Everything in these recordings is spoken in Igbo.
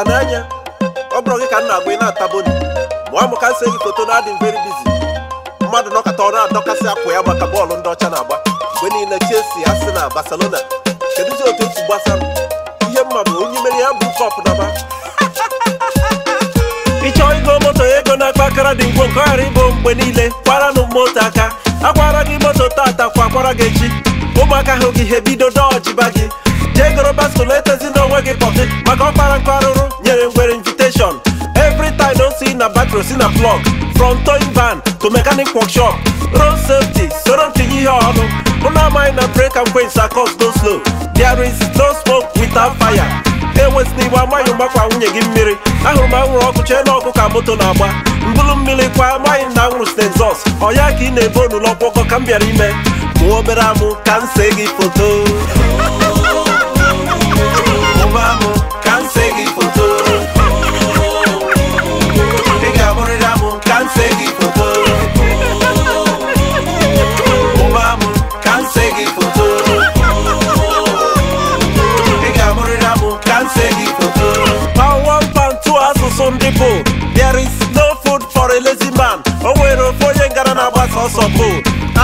ya n'anya ọ bụrụ gị ka m na-agwa ị na-ataboni ma ọ ka m si gị foto na adị very busy mmadụ nọkọta ọ na-adọkasị akwa ya maka bọọlụ ndị ọcha na-agba mgbe niile chesi asị na Barcelona kedụzi otu esi gbasa ihe mma bụ onye mere ya bụ kọp naba ịchọ ego moto ego na-akpa akara dị ngwo nke ọghara ịbụ mgbe niile kwaranụ moto aka akwara gị moto tata kwa akwara gị echi ụmụaka hụ gị ha ebido dọjiba gị jee goro baskụl etezi onwe gị pọkị maka ọkpara nke arụrụ wearing wearing invitation every time don see na battery see na plug from towing van to mechanic workshop road safety soro ti yi ọnu una mind na break and quench cause no slow there is no smoke without fire enwesịna iwe amaghị mgbakwa nwunye gị mmiri ahụrụ m anwụrụ ọkụ chee na ọkụ ka moto na-agba mbụlụ mmiri kwa amaghị na anwụrụ site nzọs ọ ya ka ị na-ebe onulọ ọgwọgọ ka m bịara ime mụọ obere amụ ka m see gị foto sọpụ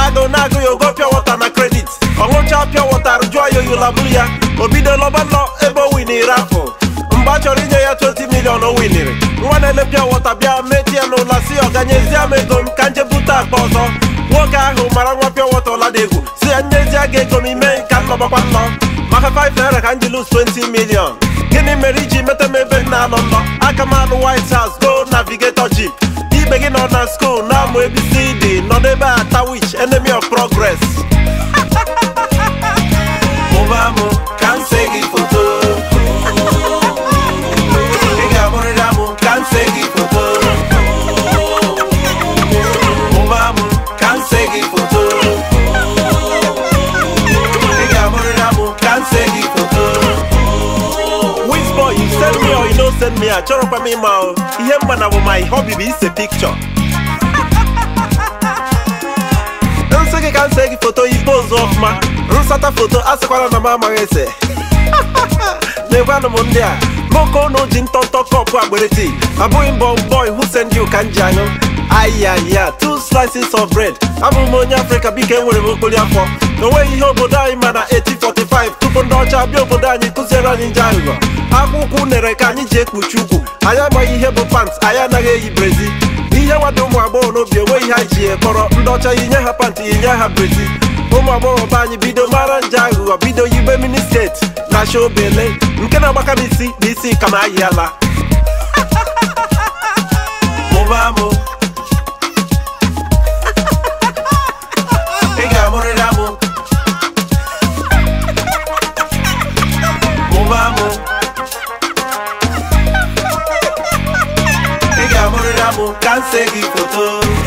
agụ na agụ ya pịa wọta na kredit ọṅụcha pịa wọta jụọ ya oyolaburu ya o bido lọba nọ ebe o win-iri afọ mgbe a chọrọ inye ya 20 milion o winiri nwa na-ele pịa wọta bịa meti ya n'ụla si ọ m ego m ka nje bute akpa ọzọ nwoke ahụ mara nwa pịa wọta ọladegwu si ya nyezie gị ego m ime ka nnọbakwa nnọ maka 5 naira ka m ji 20 milion gịnị mere iji meta m ebe nna anọ nlọ aka m white house go navigator ji ibe gị nọ na skuul na-amụ abcd Your neighbor at Tawish, enemy of progress. Obama, can't say it for two. Send me or you don't send me a chorop me mouth. Yeah, man, my hobby be a picture. nwoke ka m e se gị foto ibe ozu ọfụma rụsata foto asịkwala na m amaghị ese na-egwanụ m ndị a nwoke ụnụ ji ntọntọ kọpụ agberiti abụghị mbọ bọị husen dị ụka nji anyụ ayaya two slices of bread abụghị m onye afrịka biko enwere m okpori afọ onweghị ihe obodo anyị ma na 1845 tupu ndị ọcha bịa obodo anyị kụziere anyị nje aghụghọ akwụkwọ unere ka anyị ji ekpuchi ugwu anyị amaghị ihe bụ pants anyị anaghị eyi brezi ihe nwada ụmụ agbọghọ n'obi enweghị ihe anyị ji ekpọrọ ndị ọcha inye ha pantị inye ha brezi ụmụ agbọghọ be anyị bido mara nje aghụghọ bido yibe steeti na acha obele nke na-agbaka m isi na isi ka m ayị ala can't say it for